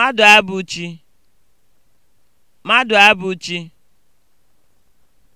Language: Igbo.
abụ chi